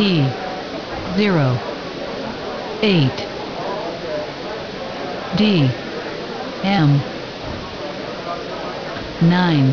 T zero eight D M nine